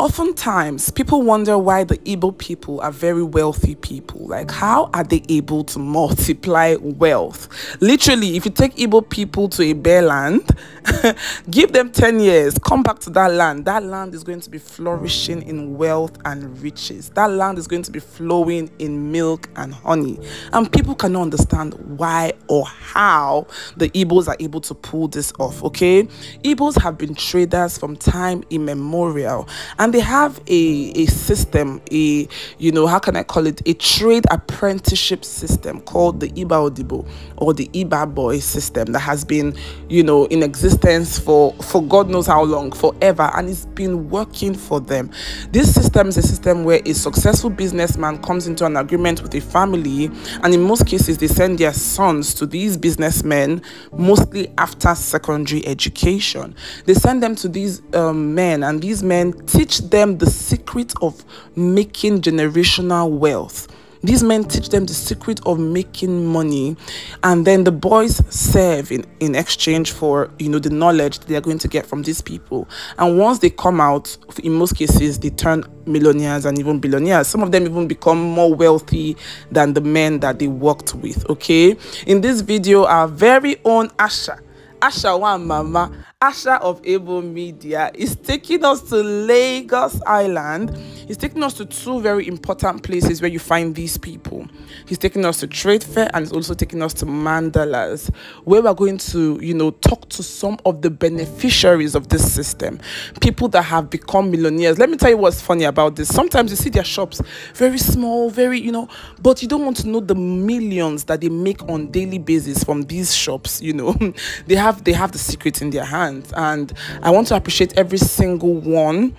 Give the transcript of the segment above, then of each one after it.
Oftentimes, people wonder why the Igbo people are very wealthy people. Like, how are they able to multiply wealth? Literally, if you take Igbo people to a bare land, give them 10 years, come back to that land. That land is going to be flourishing in wealth and riches. That land is going to be flowing in milk and honey. And people cannot understand why or how the Igbos are able to pull this off, okay? Igbos have been traders from time immemorial and they have a a system a you know how can i call it a trade apprenticeship system called the iba odibo or the iba boy system that has been you know in existence for for god knows how long forever and it's been working for them this system is a system where a successful businessman comes into an agreement with a family and in most cases they send their sons to these businessmen mostly after secondary education they send them to these um, men and these men teach them the secret of making generational wealth. These men teach them the secret of making money, and then the boys serve in, in exchange for you know the knowledge they are going to get from these people. And once they come out, in most cases, they turn millionaires and even billionaires. Some of them even become more wealthy than the men that they worked with. Okay, in this video, our very own Asha Asha one Mama Asha of Able Media is taking us to Lagos Island. He's taking us to two very important places where you find these people. He's taking us to Trade Fair and he's also taking us to Mandalas, where we're going to, you know, talk to some of the beneficiaries of this system, people that have become millionaires. Let me tell you what's funny about this. Sometimes you see their shops very small, very, you know, but you don't want to know the millions that they make on daily basis from these shops, you know. they have they have the secret in their hands month. And I want to appreciate every single one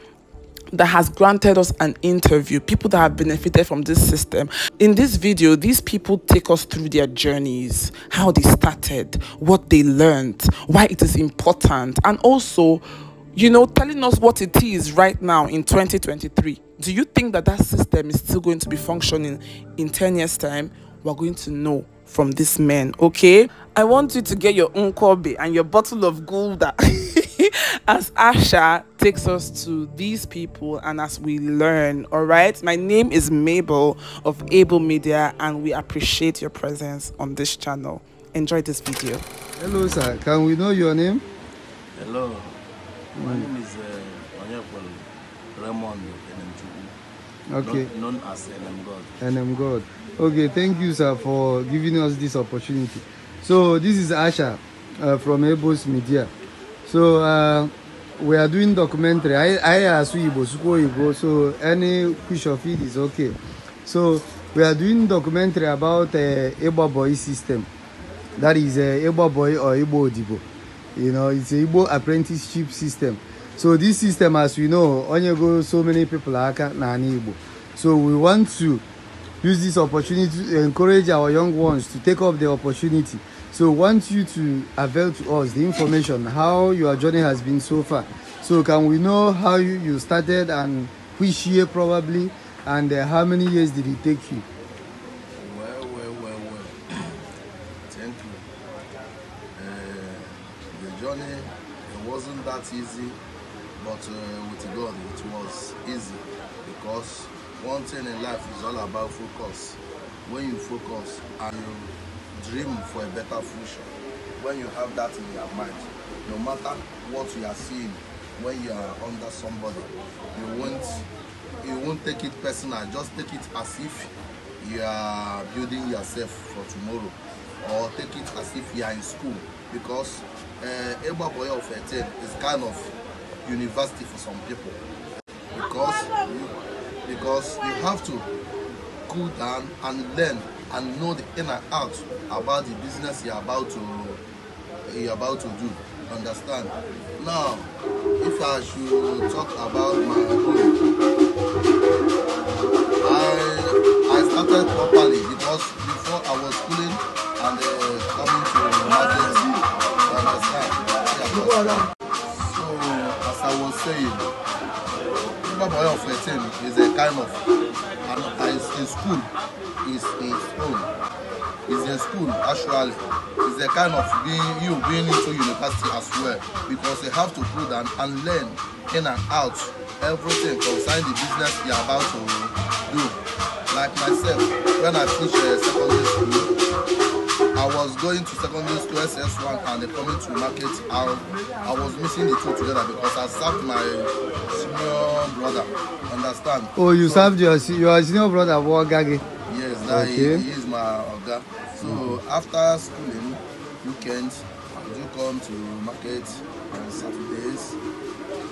that has granted us an interview, people that have benefited from this system. In this video, these people take us through their journeys, how they started, what they learned, why it is important, and also, you know, telling us what it is right now in 2023. Do you think that that system is still going to be functioning in 10 years' time? We're going to know from this man, okay? I want you to get your own Kobe and your bottle of Gulda as Asha takes us to these people and as we learn, all right? My name is Mabel of Able Media and we appreciate your presence on this channel. Enjoy this video. Hello, sir. Can we know your name? Hello. My name is uh, Raymond nm okay. known, known as NM God. NM God okay thank you sir for giving us this opportunity so this is asha uh, from ebos media so uh, we are doing documentary i i asu igbo so any push of it is okay so we are doing documentary about uh, boy system that is uh, boy or Ebo Odibo you know it's a Igbo apprenticeship system so this system as we know only go so many people are na Ebo. so we want to use this opportunity to encourage our young ones to take up the opportunity. So, want you to avail to us the information how your journey has been so far. So, can we know how you, you started and which year probably, and uh, how many years did it take you? Well, well, well, well. Thank you. Uh, the journey it wasn't that easy, but uh, with God it was easy because one thing in life is all about focus when you focus and you dream for a better future when you have that in your mind no matter what you are seeing when you are under somebody you won't you won't take it personal just take it as if you are building yourself for tomorrow or take it as if you are in school because uh, eh, Egba of 13 is kind of university for some people because because you have to go down and learn and know the inner out about the business you're about to you're about to do. Understand? Now, if I should talk about my own, I I started properly because before I was schooling and uh, coming to marketing. Understand? Yeah, will say it. Remember boy of 18 is a kind of and is a school is a school is a school actually is a kind of being you being into university as well because you have to put and, and learn in and out everything concerning the business you're about to do like myself when i finish uh, secondary school I was going to secondary school SS1 and then coming to market and I was missing the two together because I served my senior brother. Understand? Oh, you so, served your your senior brother for Gage? Yes, that okay. he, he is my oga. So mm. after schooling, weekends, I do come to market on Saturdays.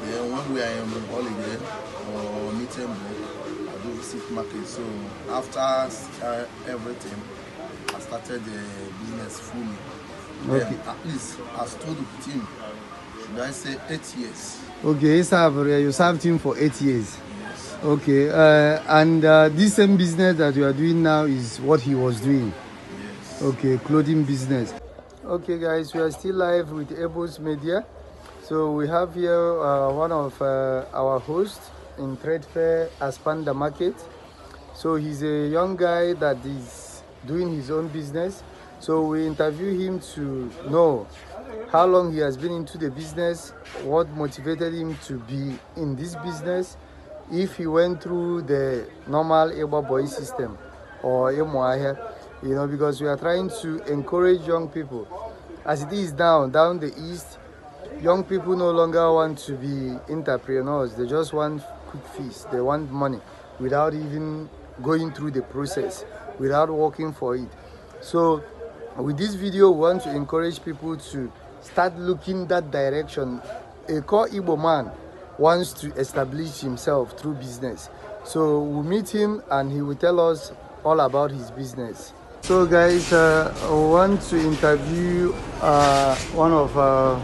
Then when we are in holiday or meeting break, I do visit market. So after uh, everything, started the uh, business fully. Okay. Then at least I stood with him, should I say eight years. Okay, you served, you served him for eight years. Okay, uh, and uh, this same business that you are doing now is what he was doing? Yes. Okay, clothing business. Okay guys, we are still live with Ebos Media. So we have here uh, one of uh, our hosts in Trade Fair Aspanda Market. So he's a young guy that is doing his own business. So we interview him to know how long he has been into the business, what motivated him to be in this business, if he went through the normal Ebo boy system or Emoahe, you know, because we are trying to encourage young people. As it is now, down the east, young people no longer want to be entrepreneurs. They just want quick fees. They want money without even going through the process without working for it so with this video we want to encourage people to start looking that direction a core Igbo man wants to establish himself through business so we'll meet him and he will tell us all about his business so guys uh, i want to interview uh, one of our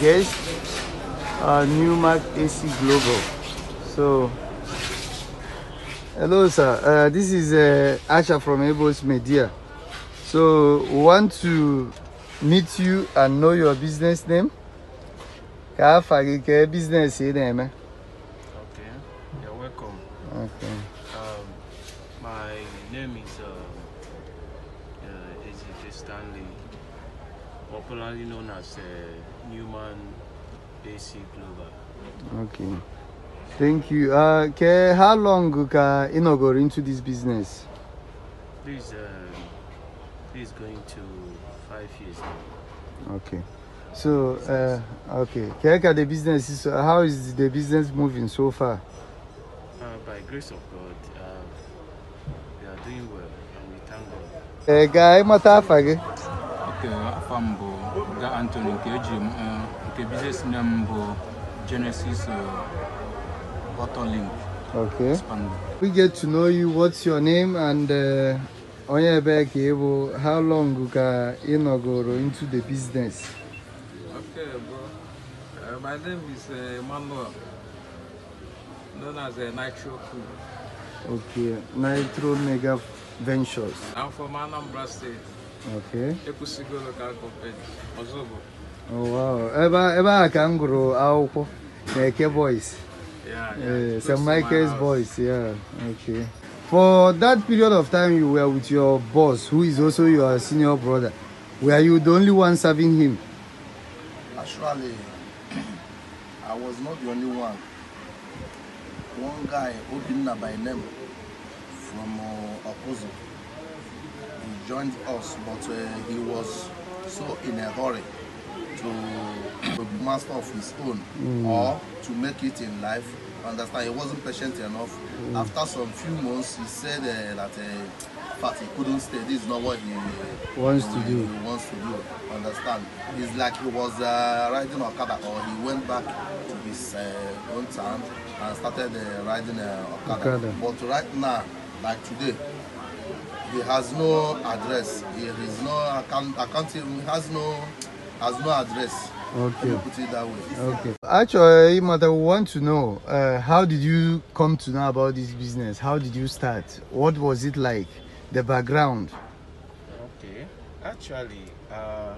guests uh, ac global so Hello, sir. Uh, this is uh, Asha from Abos Media. So, want to meet you and know your business name? business eh? Okay, you're welcome. Okay. Um, my name is uh, uh, Ezike Stanley, popularly known as uh, Newman AC Glover. Okay. Thank you. Uh, okay, how long uh, Ino got into this business? This, uh, going to five years now. Okay. So, uh, okay. the business is, uh, how is the business moving so far? Uh, by grace of God, uh, we are doing well and we thank God. Eh, guy, matafa ge? Okay, afam bo, Anthony, uh, nke Okay, business name bo Genesis uh, Link. Okay. We get to know you. What's your name and uh, onye how long you ị nọgoro into the business? Okay, bro. Uh, my name is uh, Emmanuel, known as uh, Nitro Okay, Nitro Mega Ventures. I'm from Anambra State. Okay. Ekusigo Local Company, Ozobo. Oh, wow. Ebe a ka m Eke Boys. Yeah, yeah. yeah boys, yeah. Okay. For that period of time you were with your boss, who is also your senior brother, were you the only one serving him? Actually, I was not the only one. One guy, Obinna by name, from uh, he joined us, but uh, he was so in a hurry to master of his own mm. or to make it in life. Understand? He wasn't patient enough. Mm. After some few months, he said uh, that uh, fact he couldn't stay. This is not what he uh, wants he, to do. He wants to do. Understand? It's like he was uh, riding Okada, or he went back to his uh, own town and started uh, riding uh, Okada. Okada. But right now, like today, he has no address. He has no account. Account. He has no has no address. Okay. Put it that way. Okay. Actually, Mata, we want to know uh, how did you come to know about this business? How did you start? What was it like? The background. Okay. Actually, uh,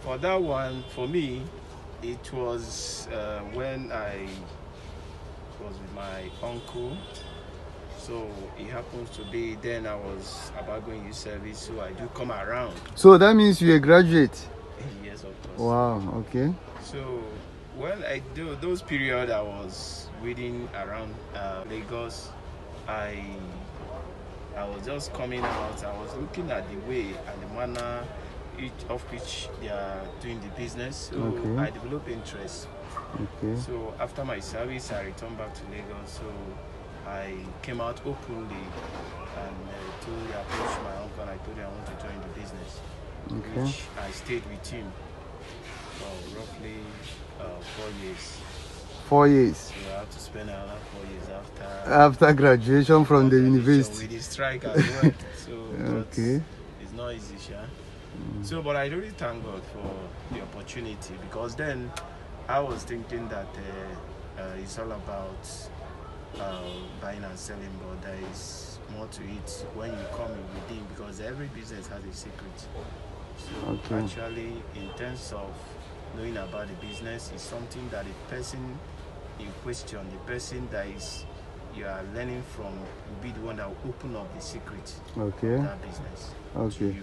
for that one, for me, it was uh, when I was with my uncle. So it happens to be then I was about going to service, so I do come around. So that means you're a graduate? Wow, okay. So, well, I do those period I was waiting around uh, Lagos, I I was just coming out. I was looking at the way and the manner each of which they are doing the business. So okay. I developed interest. Okay. So after my service, I returned back to Lagos. So I came out openly and uh, told, I approached my uncle. I told him I want to join the business, okay. which I stayed with him roughly uh, four years. Four years. have to spend another four years after. After graduation from after the university. With the strike as well. so okay. It's not easy, sure. Mm. So, but I really thank God for the opportunity because then I was thinking that uh, uh, it's all about uh, buying and selling, but there is more to it when you come in within because every business has a secret. So okay. actually, in terms of knowing about the business is something that the person in question, the person that is you are learning from, will be the one that will open up the secret okay. of that business. Okay.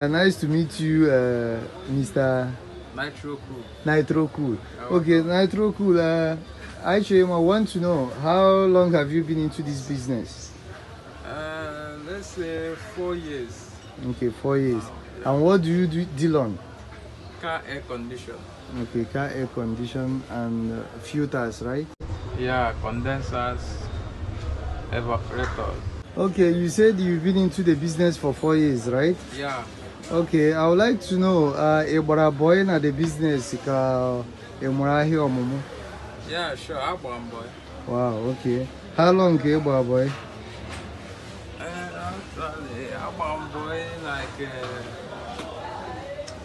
Uh, nice to meet you, uh, Mr. Nitro Cool. Nitro Cool. Okay, Nitro Cool. Uh, actually, I want to know how long have you been into this business? Uh, let's say four years. Okay, four years. Wow. And what do you do, deal on? car air condition. Okay, car air condition and uh, filters, right? Yeah, condensers, evaporators. Okay, you said you've been into the business for four years, right? Yeah. Okay, I would like to know, uh, Ebora boy na the business ka uh, emurahi omumu? Yeah, sure, Agbam boy. Wow, okay. How long ka eh, Ebora boy? Uh, actually, Agbam boy like... Uh,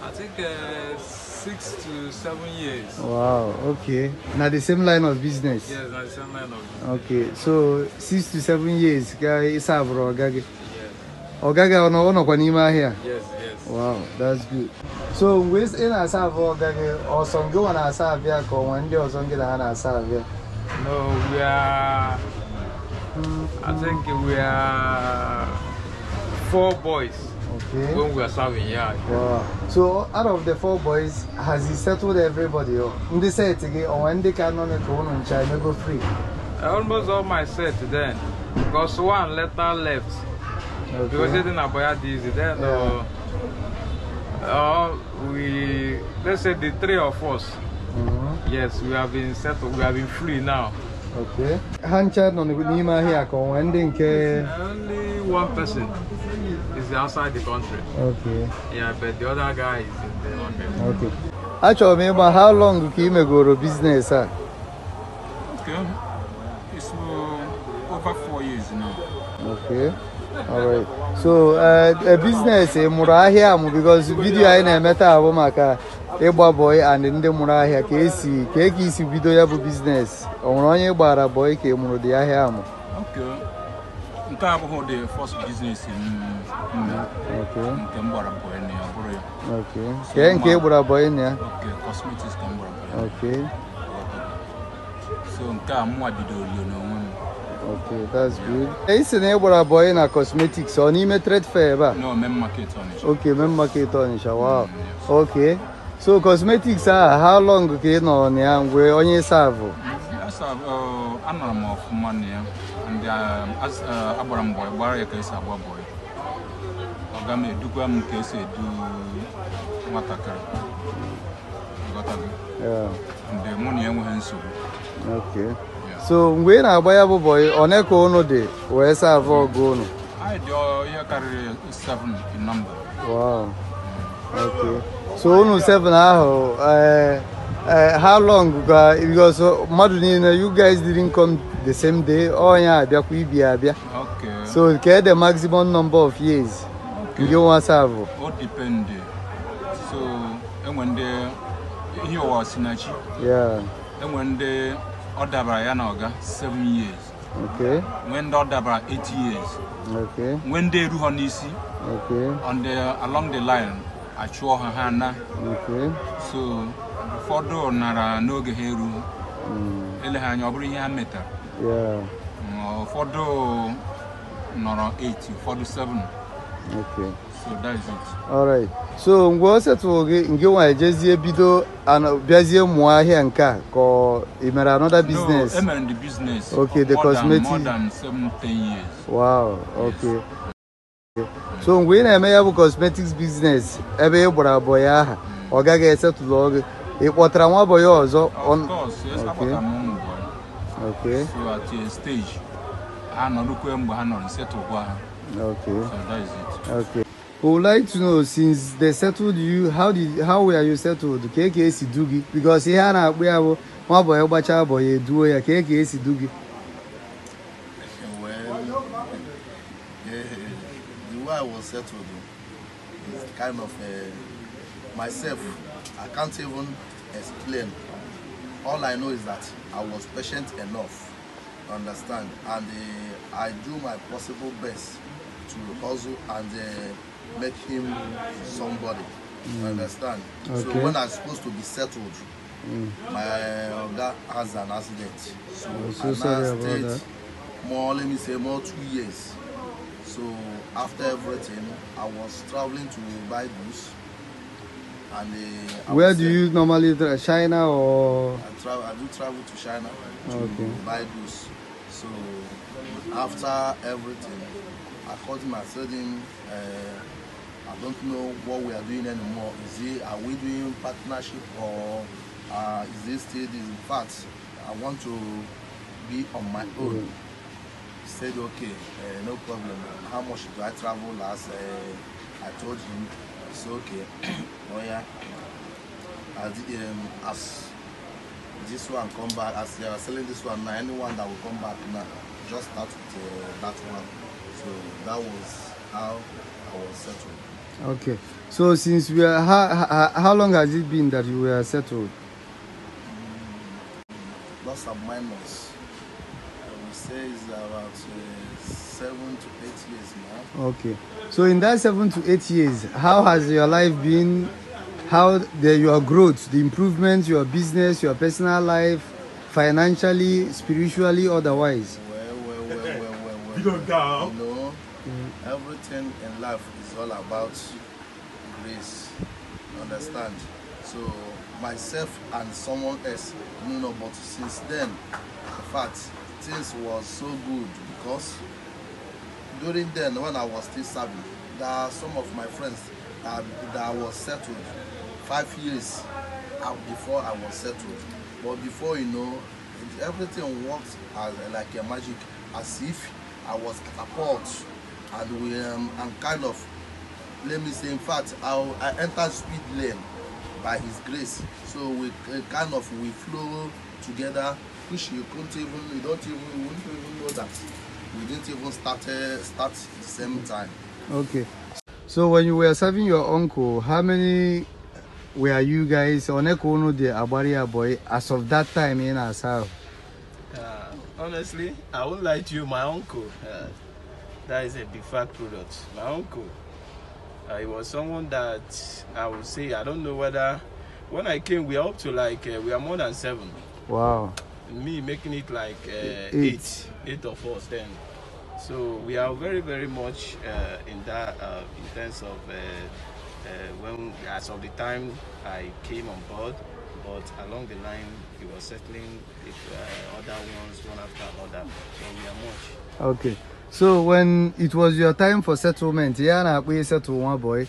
I think uh, six to seven years. Wow, okay. Now the same line of business? Yes, now the same line of business. Okay, so six to seven years, guy, e serve Ogage. Ogage ono ono kwa nima ahịa? Yes, yes. Wow, that's good. So mgbe ị e na-asa abụ Ogage, ọsọ ngị nwa na-asa abịa ka ọnwa ndị ọzọ ngị na ha na-asa abịa? No, we are... I think we are four boys. Okay. When we are serving, yeah. Wow. So, out of the four boys, has he settled everybody? They say it again, or when they can on it, one on China go free. Almost all my set then, because one letter left. Okay. Because they didn't about this, then. Yeah. Uh, uh, we let's say the three of us. Mm -hmm. Yes, we have been settled. We have been free now. Okay. Hand chat on the Nima here. when they Only one person. is outside the country. Okay. Yeah, but the other guy is in the market. Okay. Actually, remember how long Kimegoro business? Huh? Okay. It's uh, over four years now. Okay. All right. So, uh, a business eh, mụrụ ahịa because video anyị na-eme taa abụ maka ịgba boy and ndị mụrụ ahịa ka esi ka ego isi business. Ọ nwere onye o boy ka ị mụrụ dị ahịa amụ? Okay. nke abụghị ụdị first business nke mgbara gbara bọyị ya ọ bụrụ ya nke ị gbara bọyị ya cosmetics ka so nke a bidoro rio n'onwe m Okay, that's good. E si na ịgbara gbara na cosmetics ọ n'ime trade fair ebe a? No, men market Onitsha. Okay, men market Onitsha, wow. Mm, okay. So cosmetics a how long ka ị nọ na ya mgbe onye savụ? Um, agbara uh, m bọị gbara ya ka esi agba bọị ọ ga m edukwa m ka esi edu nwatakịrị mgbe mụ na ya enweghị nsogbu so mgbe ị na-agba ya bụ bọị one ka unu dị wee savụ ọgụ unu anyị dị ya karịrị 7 in number so unu 7 ahụ ee eh, Uh, how long uh, because mmadụ uh, niile you guys didn't come the same day onye abịakwa ibi abịa so ke the maximum number of years nke nwa savụ o depend uh, so enwe ndị ihe ụwa sinachi enwe ndị ọ dabara ya na ọga 7 years okay nwee ndị ọ dabara 8 years okay nwee ndị eru ha n'isi okay on the uh, along the line achụọ ha ha na okay so ụfọdụ nara n'oge ha eru hmm. eleghị anya ọ bụrụ ihe ha metara ụfọdụ nọrọ 8 ụfọdụ 7 okay so that is it all so mgbe o setụrụ gị nke nwa ejezie bido bịazie mụọ ahịa nke a ka ị mere another business no e emere the business okay the cosmetic more than 7 years wow ok so mgbe ị na-eme ya bụ cosmetics business ebe ị gbara abụọ ya aha hmm. ọ gaghị esetụlụ gị E boy also? On... course, yes, okay. boy. Okay. So at stage, I look where I'm going Okay. So that is it. Okay. I would like to know since they settled you, how did how were you settled? KKC Doogie Because here now we have one boy, Obacha boy, a duo, KKC Well, the way I was settled is kind of uh, myself. I can't even explain. All I know is that I was patient enough, understand, and uh, I do my possible best to hustle and uh, make him somebody, mm. understand. Okay. So when I'm supposed to be settled, mm. my that uh, has an accident. So, I'm about that. more, let me say, more two years. So after everything, I was traveling to buy goods. And uh, where do you normally travel? China or? I travel. I do travel to China to okay. buy goods. So after everything, I called him. I said him, uh, I don't know what we are doing anymore. Is it are we doing partnership or uh, is this still In fact, I want to be on my own. Yeah. Mm-hmm. Said okay, uh, no problem. How much do I travel last? Uh, I told him It's okay. oh yeah. As, um, as this one come back, as they are selling this one now, anyone that will come back now, just start with uh, that one. So that was how I was settled. Okay. So since we are, how, how, how long has it been that you were settled? Mm, plus and minus. I would say it's about uh, seven to eight years now. Okay. So in that seven to eight years, how has your life been? How the, your growth, the improvements, your business, your personal life, financially, spiritually, otherwise? Well, well, well, well, well, well. You don't know. You know, everything in life is all about grace. You understand? So myself and someone else, you know, but since then, in fact, things was so good because during then when I was still serving, there are some of my friends that, that was settled five years before I was settled. But before you know, everything worked as like a magic, as if I was catapult and we um, and kind of let me say in fact I, I entered speed lane by his grace. So we uh, kind of we flow together, which you couldn't even you don't even you wouldn't even know that we didn't even start uh, start the same time. Okay. So when you were serving your uncle, how many were you guys on Ekono the Abaria boy as of that time in Asau? Uh, honestly, I won't lie to you, my uncle. Uh, that is a big fact product. My uncle, uh, he was someone that I would say, I don't know whether, when I came, we are up to like, uh, we are more than seven. Wow. me making it like uh, eight. eight, eight of us then. So we are very, very much uh, in that uh, in terms of uh, uh, when as of the time I came on board, but along the line we were settling with, uh, other ones one after another. So we are much. Okay. So when it was your time for settlement, yeah, we settled one boy.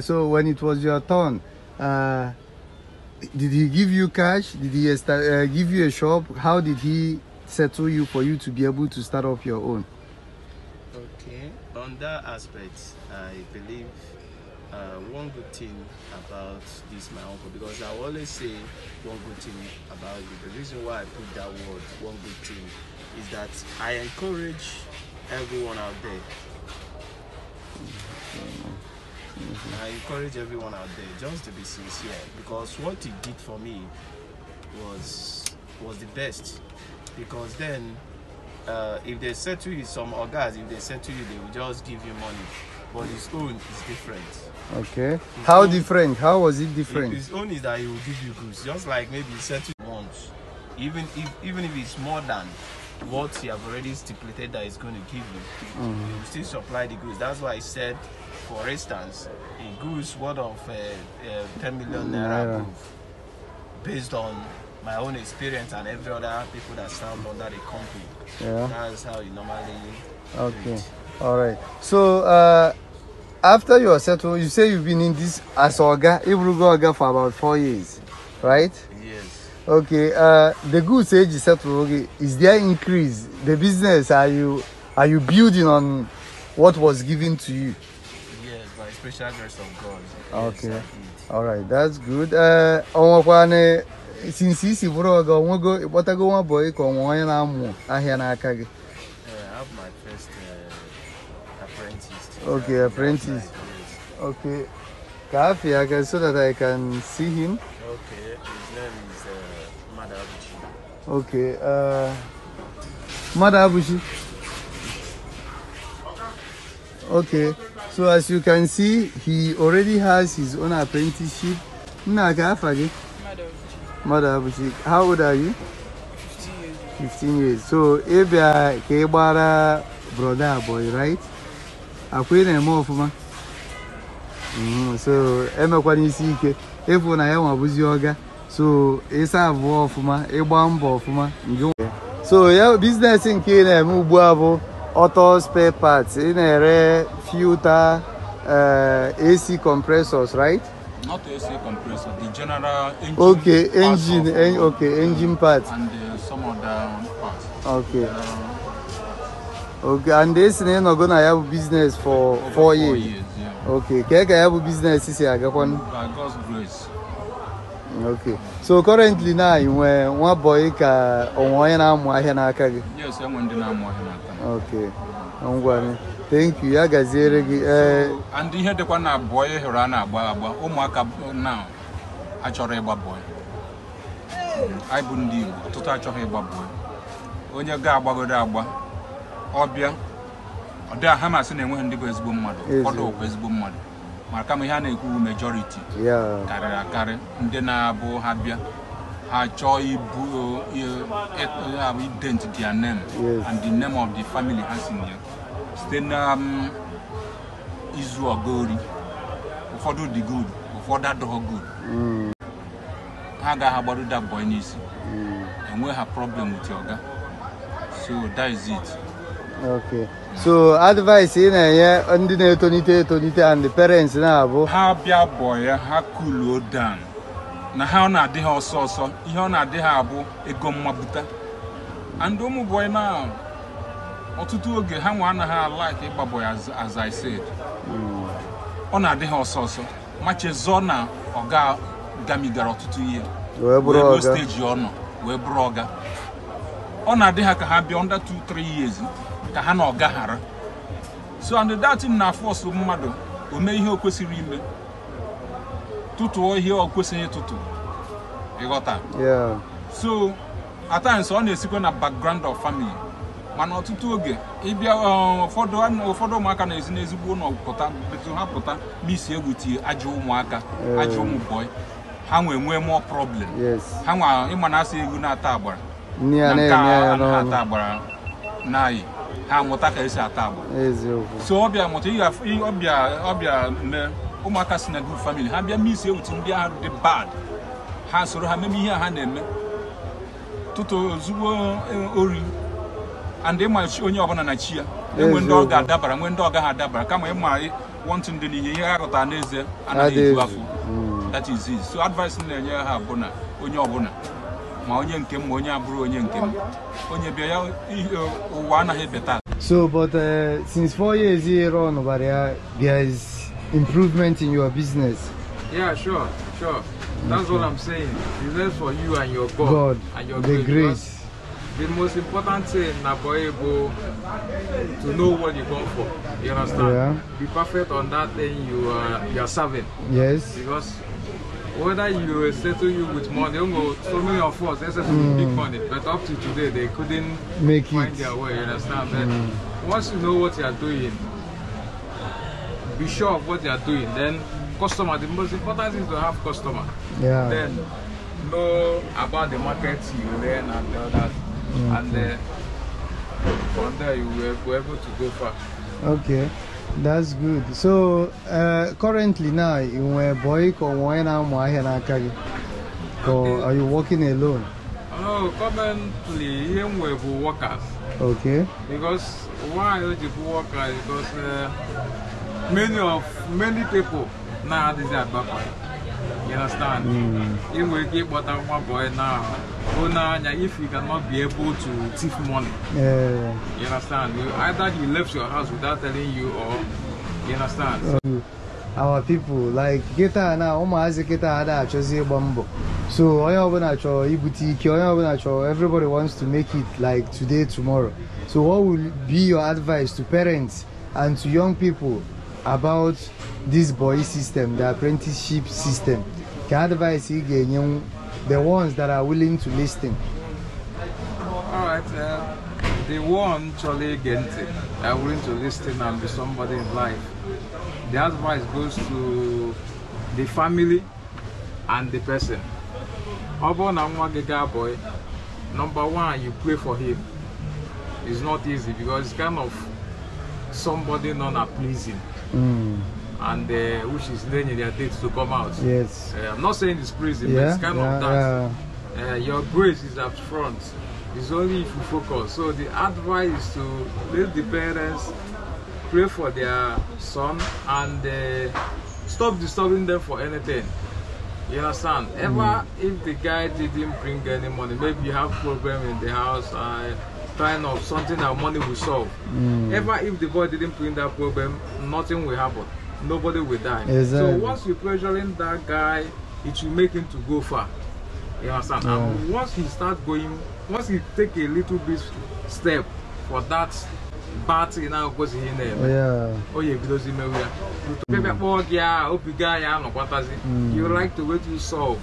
so when it was your turn did he give you cash? Did he uh, give you a shop? How did he settle you for you to be able to start up your own? Okay, on that aspect, I believe uh, one good thing about this my uncle because I always say one good thing about you. The reason why I put that word one good thing is that I encourage everyone out there I encourage everyone out there just to be sincere because what he did for me was was the best because then uh, if they said to you some guys if they said to you they will just give you money but his own is different okay his how own, different how was it different his own is that he will give you goods just like maybe he settle once even if even if it's more than what he have already stipulated that he's going to give you, mm -hmm. still supply the goods. That's why I said for instance, a goose worth of uh, uh, 10 million naira based on my own experience and every other people that served under the company. Yeah. That's how you normally. Okay. All right. So uh, after you are settled, you say you've been in this as Oga, Ibrugo Oga for about four years, right? Yes. Okay. Uh, the goods age is settled. Is there increase? The business are you are you building on what was given to you? special grace of God. Ah, okay. Yes, All right, that's good. Uh, on one since isi bụrụ ọga onwego ịkpọtago nwa bọyị ka ọnwa onye na-amụ ahịa n'aka gị eh, eh, okay apprentice okay ka afia aka so that i can see him okay his name is uh, mada abuchi okay uh, mada okay So as you can see, he already has his own apprenticeship. Mother Abuchik. How old are you? 15 years. 15 years. So Ebia gbara brother boy, right? akwa ị Akwene mo ofuma. Mm-hmm. So emekwani isi ike. Efu na ya nwabuzi ọga So ịsa abụọ ọfụma, ịgba mbọ ọfụma. So ya biznes nke ị na-eme ugbu a auto spare parts, inere, filter, uh, AC compressors, right? Not AC compressor, the general engine. Okay, engine, of, en okay, engine parts. And uh, some other parts. Okay. Um, okay, and this name not gonna have business for four, four years. years yeah. Okay, can I have business this year? By God's grace. Okay. So currently now, you were one boy ka onye na amụ ahịa n'aka gị. Yes, I'm one thank you ya gaziere gị ndị ihe dịkwa na abụọ ị hụrụ a na-agba agba ụmụaka na achọrọ ịgba anyị bụ ndị Igbo ọtụtụ achọghị ịgba onye ga-agbagoro agba ọbịa ọ dị ha na enweghị ndị bụ ezigbo mmadụ ụfọdụ bụ ezigbo mmadụ maka ma ihe a na-ekwu majoriti karịrị akarị ndị na-abụ ha bịa Ajo Ibu uh, we dent name yes. and the name of the family has in here. Then um, izu ogori ụfọdụ dị good ụfọdụ adọghọ good mm. ha agaghị agbaru that boy n'isi mm. enwe ha problem with oga so that is it okay so advice ị yeah, ndi the na-etonite etonite and the parents na-abụ boy ya cool down na ha ọ na-adị ha ọsọ ọsọ ihe ọ na-adị ha abụ ego mmabuta and ụmụ boy na ọtụtụ oge ha nwe anaghị like ịgba azaised as I said ọ na-adị ha ọsọ ọsọ machezọ na ọga gamigara ọtụtụ ihe steji ọ nọ wee bụrụ ọga ọ na-adị ha ka ha bịa under 2-3 years ka ha na ọga ghara so and that na force mmadụ o mee ihe o kwesịrị ime tụtụọ ihe ọ kwesịghị ịtụtụ ịghọta so at times ọ na-esikwa na background of famili mana ọtụtụ oge ịbịa um, ụfọdụ ụmụaka na-ezi n'ezigbo ụlọ pụta etu ha pụta misi egwu tie ajọ ụmụaka ajọ ụmụ bọị ha nwee nwee mụọ problem ha nwa ịma na asị egwu na-ata agbara na-ata agbara n'anyị ha amụta ka esi ata agbara so ọbịa ọbịa ọbịa mee ụmụaka si na group ha bịa misi ewutu ndị ahụ dị bad ha soro ha meme ihe ha na-eme tụtụ ozugbo eh, ori and ịma onye ọbụla na chi ya enwe ndị ọ ga-adabara nwee ndị ọ gaghị adabara kama ịma wọntụ ndị n'ihe ihe ha ghọtara n'ezie anaghị eju afọ hmm. that is it so advice na-enye ha bụ na onye ọbụla ma onye nke m ma onye abụrụ onye nke m onye bịa ya ụwa anaghị ebeta so but uh, since four years here on Obaria, there improvement in your business. Yeah, sure, sure. That's okay. what I'm saying. It's left for you and your God, God and your the grace. The most important thing Naboebo to know what you come for. You understand? Yeah. Be perfect on that thing you are you are serving. Yes. Because whether you settle you with money, so many of us they settle mm. big money, but up to today they couldn't Make find it. their way. You understand? But mm. once you know what you are doing, be sure of what you are doing. Then customer, the most important thing is to have customer. Yeah. Then know about the market you learn and all that. Mm -hmm. And then from there you will be able to go far. Okay. That's good. So uh, currently now, you're a boy or are you working alone? No, currently here we have workers. Okay. Because why do you workers? Because uh, many of many people now, a bad boy. you understand You will get ịkpọta nwa boy now, go if you cannot be able to thief money you understand either he left your house without telling you or you understand our people like Geta na ụmụazị kịta ada achọzi ịgba so onye ọbụla chọrọ ibute everybody wants to make it like today tomorrow so what will be your advice to parents and to young people about this boy system the apprenticeship system ka advice he ga-enye the ones that are willing to listen all right uh, the one Charlie ige ntị are willing to listen and be somebody in life the advice goes to the family and the person ọ bụrụ boy number one you pray for him it's not easy because it's kind of somebody non pleasing Mm. And uh, which is in their dates to come out. Yes. Uh, I'm not saying it's prison, yeah, but it's kind yeah, of that. Yeah. Uh, your grace is up front. It's only if you focus. So the advice is to let the parents pray for their son and uh, stop disturbing them for anything. You understand? Ever mm. if the guy didn't bring any money, maybe you have problem in the house. Uh, Kind of something that money will solve. Mm. Ever if the boy didn't bring that problem, nothing will happen. Nobody will die. Exactly. So once you're pressuring that guy, it will make him to go far. You understand? Yeah. And hmm. once he start going, once he take a little bit step for that bat oh, hmm. oh, i Yeah. na-agwụkwọzi in there. Yeah. onye ebidozi imewe ya pịbịa kpọọ gị a obiga ya anọkwatazi you like to wait to solve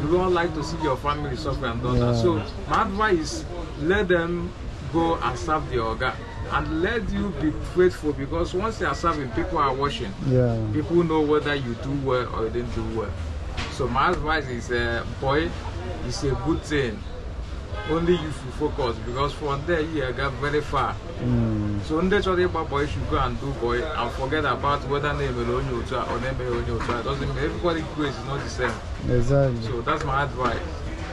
you don't like to see your family suffer and all that so my advice let them go and serve the organ and let you be faithful because once you are serving, people are watching. Yeah. People know whether you do well or you didn't do well. So my advice is, uh, boy, it's a good thing. Only you should focus because from there you got very far. Mm. So in the about boy should go and do boy and forget about whether name alone you or name alone you doesn't mean everybody grace is not the same. Exactly. So that's my advice.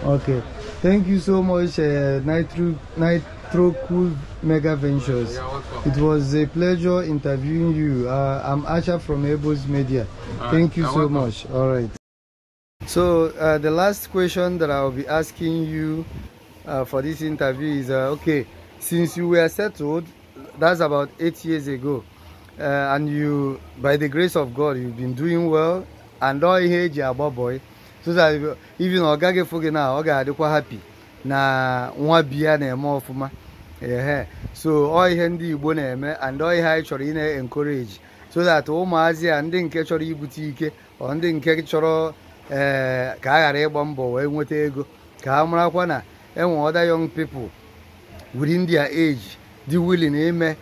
Okay. Thank you so much, uh, Nitro, Nitro through Cool Mega Ventures. It was a pleasure interviewing you. Uh, I'm Asha from Able's Media. Right. Thank you You're so welcome. much. All right. So uh, the last question that I'll be asking you uh, for this interview is, uh, okay, since you were settled, that's about eight years ago, uh, and you, by the grace of God, you've been doing well, and all here, boy, so that even Ogage Foge now, look quite happy. na nwa biya na-eme ọfụma ehe so ọ ihe ndị igbo na-eme and ọ ihe anyị chọrọ ị na-encourage so that ụmụazị a ndị nke chọrọ ibute ike ọ ndị nke chọrọ ee ka a ghara ịgba mbọ wee nweta ego ka a marakwa na enwe other young people within their age dị willing ime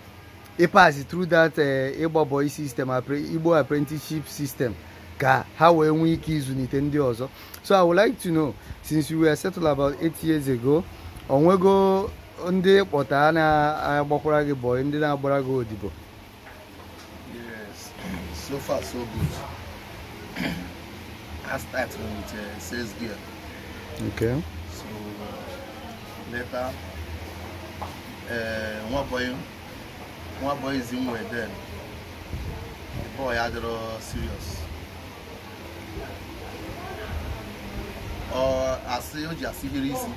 ịpas through that e, ịgbabọ system Igbo apprenticeship system ka ha wee nwee ike ịzụlite ndị ọzọ so i would like to know since you were settled about eight years ago onwego ndị kpọta na-agbakwara gị bọị ndị na-agbara gị odibo yes so far so good i start with uh, sales gear okay so uh, later uh, nwa boy nwa boy is in way then the boy serious or Aseoji Asibirisi.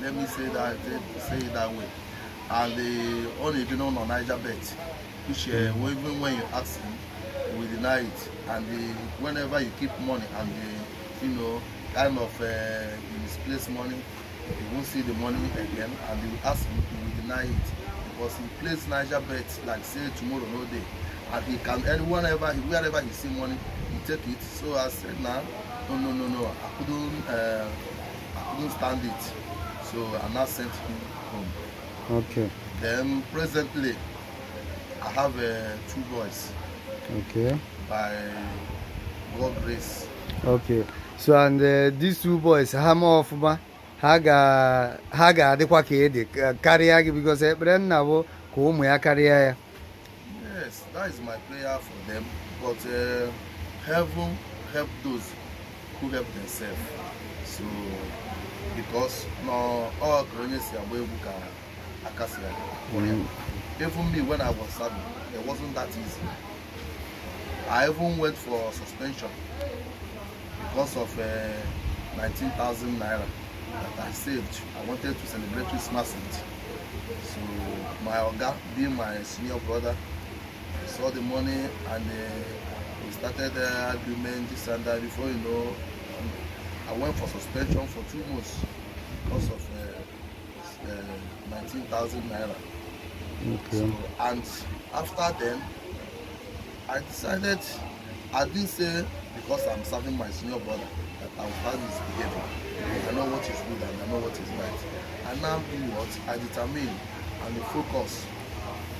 Let me say that say it that way. And the only unbeknown on Niger bet, which uh, hmm. even when you ask him, we deny it. And the, whenever you keep money and the, you know, kind of uh, misplaced money, you won't see the money again. And they will ask him, we deny it because he placed Niger bet like say tomorrow no day and he can and whenever he wherever he see money he take it so i said na no no no no i couldn't uh, i couldn't stand it so i now sent him home okay then presently i have uh, two boys okay by god grace okay so and uh, these two boys ha ma ọfụma ha ga ha ga-adịkwa ka ede karịa gị because ekpere nna bụ ka ụmụ ya karịa ya that is my prayer for them but uh, heaven help those who help themselves so because na all ka are si agba egwu ka even me when i was serving it wasn't that easy i even went for suspension because of uh, 19,000 naira that i saved i wanted to celebrate christmas with so my oga being my senior brother saw the money and uh, we started uh, argument this and that before you know um, I went for suspension for two months because of uh, uh, 19,000 naira okay. so, and after then I decided I didn't say because I'm serving my senior brother that I will start this behavior I know what is good and I know what is right and now do what I determine and the focus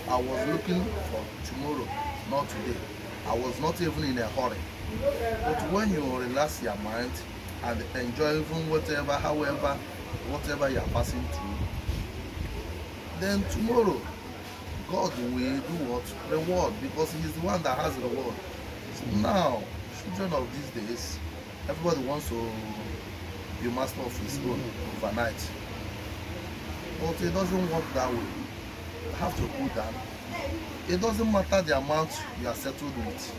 I was looking for tomorrow, not today. I was not even in a hurry. But when you relax your mind and enjoy even whatever, however, whatever you are passing through, then tomorrow God will do what? Reward, because He's the one that has reward. So now, children of these days, everybody wants to be master of his own overnight. But it doesn't work that way have to put down. It doesn't matter the amount you are settled with,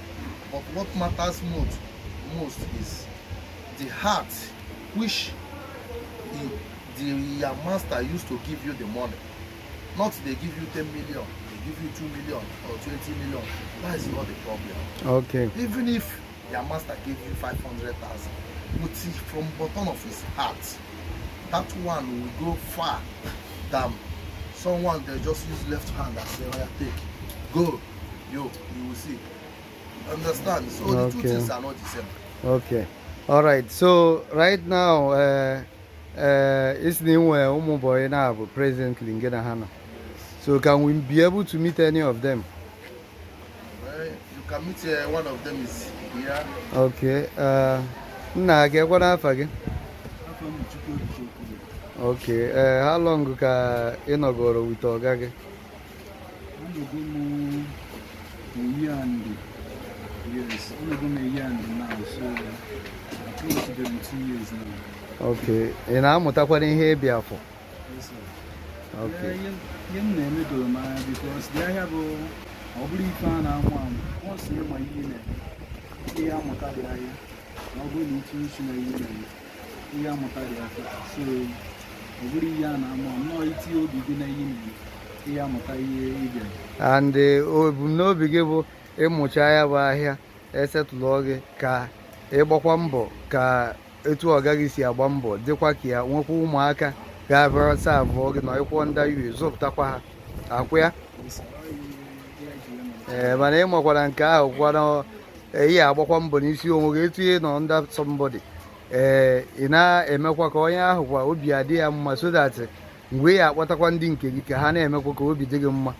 but what matters most, most is the heart which the, your master used to give you the money. Not they give you 10 million, they give you 2 million or 20 million. That is not the problem. Okay. Even if your master gave you 500,000, but from bottom of his heart, that one will go far than someone they just use left hand and say, well, take, go, yo, you will see. Understand? So the okay. two things are not the same. Okay. All right. So right now, uh, uh, it's new uh, Umuboy now President Lingena Hana. So can we be able to meet any of them? Well, you can meet uh, one of them is here. Okay. Uh, Nna, get what happened again? ok ee eh, how long ka ị nọgoro wit ọga gị ok ị na-amụtakwana ihe ịbịa afọ eh, m na-eme m anya bikos dị ahịa bụ ọ bụrụ ife a na-amụ amụ na-eme ihe amụta dị ahịa ọ bụrụ na ịtụ na ihe na-eme ihe amụta dị so ọ bụrụ ihe a na-ama nnọọ iti obi gị na ihe na ihe amụta ihe ị bịara and uh, oh, ebumnobi gị bụ ịmụcha ya bụ ahịa esetụlụọ gị ka ịgbakwa mbọ ka etu ọ gaghị si agba mbọ dịkwa ka ya nwekwa ụmụaka ga-abịara sa abụọ gị na ịkwụọ ndị yu zụpụtakwa ha akwụ ya ee eh, mana ị makwara nke ahụ kwana eyi eh, agbakwa mbọ n'isi onwe gị etu ihe nọ nda sọmbọdị ị eh, na-emekwa ka onye ahụ kwa obi adị ya mma so that mgbe ya akpọtakwa ndị nke gị ka ha na-emekwa ka obi dị gị mma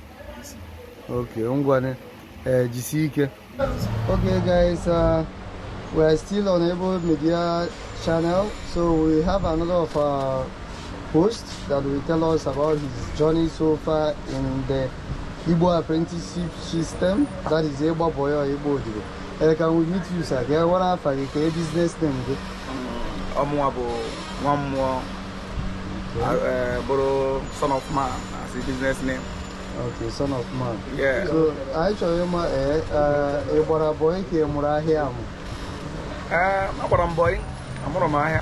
ok ngwa ee eh, jisie ike guys uh, we are still on Able Media channel so we have another of our host that will tell us about his journey so far in the Igbo apprenticeship system that is Igbo Boyo Igbo Odibo. Uh, eh, can we meet you sir? Ka e wara afa gị business name gị. I'm nwa mmụọ bụrụ son of man as a business name. Okay, son of man. Yeah. So, anyị chọrọ ịma ị gbara bọyị ka boy mụrụ ahịa amụ? Ee, agbara m bọyị, amụrụ m ahịa.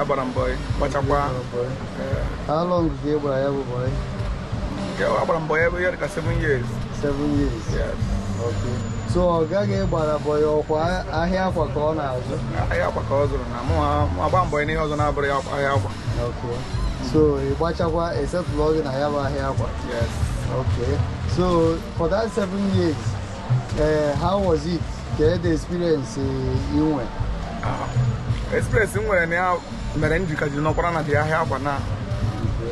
Agbara m bọyị, kpachakwa. How long is ị gbara ya bụ bọyị? Agbara m seven years. Seven years? Yes. Okay. so ọ gaghị ịgbarabọ ya ọkwa ahịa akwa ka ọ na-azụ ahịa akwa ka ọ zụrụ na mụ agba mbọ n'ihe ọzọ na-abụrụ ya ahịa akwa so ị gbachakwa esetụlụ gị na ya bụ ahịa akwa okay so for that seven years uh, how was it the experience inwe ah, experience m nwere na ya mere m jikaji n'ọkwara na dị ahịa akwa na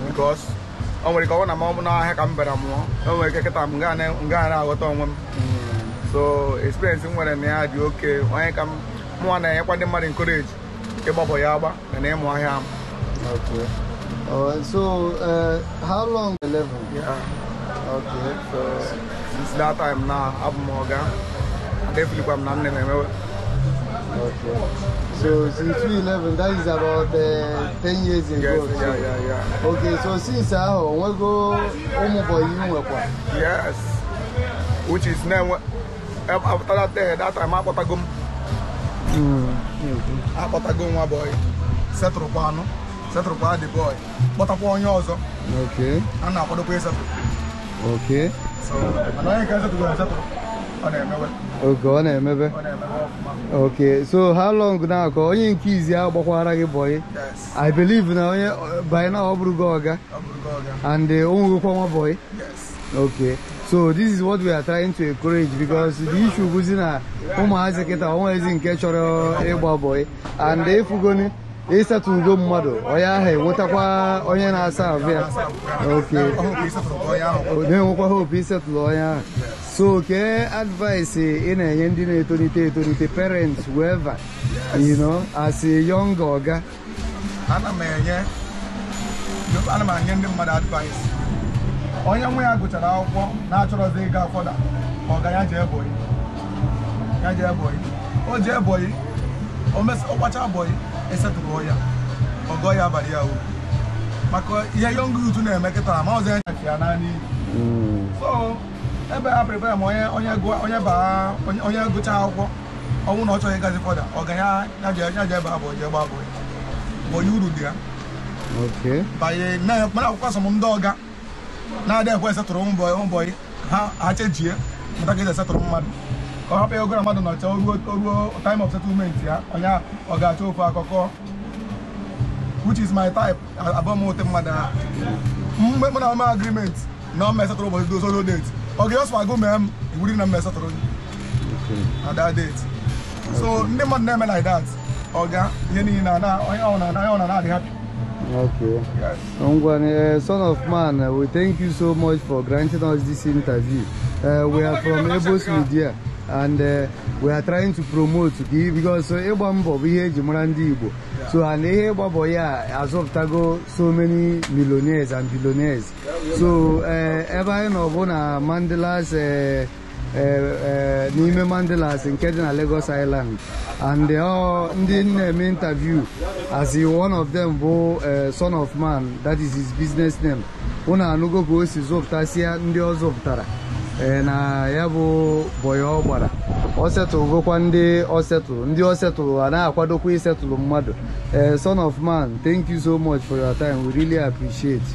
because o nwere ike ọ na ma ọ bụ n'ahịa ka m bịara mụọ o nwere ike kịta m gaa na-aghọta onwe m so experience m nwere na okay, when I come, ka I na enyekwa ndị mmadụ encourage ịgbapụ ya agba na I ịmụ ahịa Okay. All right. So, uh, how long the level? Yeah. Okay. So, since that time now, I'm Morgan. Definitely, I'm not name. Okay. So, since 2011, that is about uh, 10 years ago. Yes, yeah, yeah, yeah. Okay. So, since I uh, we go home for you? Yes. Which is now. that time akpọtago m akpọtago nwa boy setụrụkwa anụ setụrụkwa the boy kpọtakwa onye ọzọ a na-akwadokwa isetụ oge ọ na so how long na nke izi ahụ gbakwara gị i believe na onye by now ọ bụrụ gị the and o nwegokwa nwa bọyị so this is what we are trying to encourage because the issue bụzi na ụmụazị kịta onwezi nke chọrọ ịgba bọị and efugoni ịsatugo mmadụ onye ahụ enwetakwa onye na-asa ahụ ya na-enwekwa hope ịsetụlụ onye oh, ahụ so ke advice ị na-enye ndị na-etolite etolite parents whoever you know as a young ana m enye ndị mmadụ advice onye nwe ya gụchara akwụkwọ na-achọrọzi ịga fọda ọga ya jee ebonyi ya jee ebonyi o jee ebonyi ọgbacha ebonyi esetụrụ ya ọgọ ya abalị ya uru maka ihe young youth na-eme kịta ma ọzọ ya nyafe ya naanị so ebe a prepare ma onye onye baa gụcha akwụkwọ ọnwụ na ọ chọghị ịgazi fọda ọga ya ya yaje ebe abụọ jee gbaa abụọ onye uru dị ya banye akwụkwọ asọm ndị ọga na ada ekwe asatọrọ ụmụ ụmụ bọyị ha achejie mụta ka eji asatọrọ mmadụ ka ọ hapụ ya ogara mmadụ na ọcha ruo time of settlement ya onye ọ ga-achọ ofe akụkọ which is my type abọmote mmadụ a mgbe mụ na ome agreement na ọma asatọrọ ụbọchị dozoro date ọ ga-esọ agụ mee m iwuri na mma asatọrọ na that date so ndị mmadụ na-eme like that ọga ihe niile na onye ọ na-adị happy Okay. Yes. Ongwane, eh, son of man, eh, we thank you so much for granting us this interview. Uh, we are from Ebos Media and uh, we are trying to promote because ịgba we bụ ihe eji mara so and ihe ịgba as of azọpụtago so many millionaires and billionaires so ebe anyị nọ bụ Mandela's Eh, eh, n'ime Mandalas nke dị na Lagos Island and ndị na-eme um, interview as one of them bụ eh, son of man that is his business name unu anụgo ka o si zụpụtasịa ndị ọ zụpụtara na ya bụ bọyọ ọ gbara ọ setụlụgokwa ndị ọ setụl ndị ọ setụl a na-akwadokwa isetụlụ mmadụ son of man thank you so much for your time we really appreciate.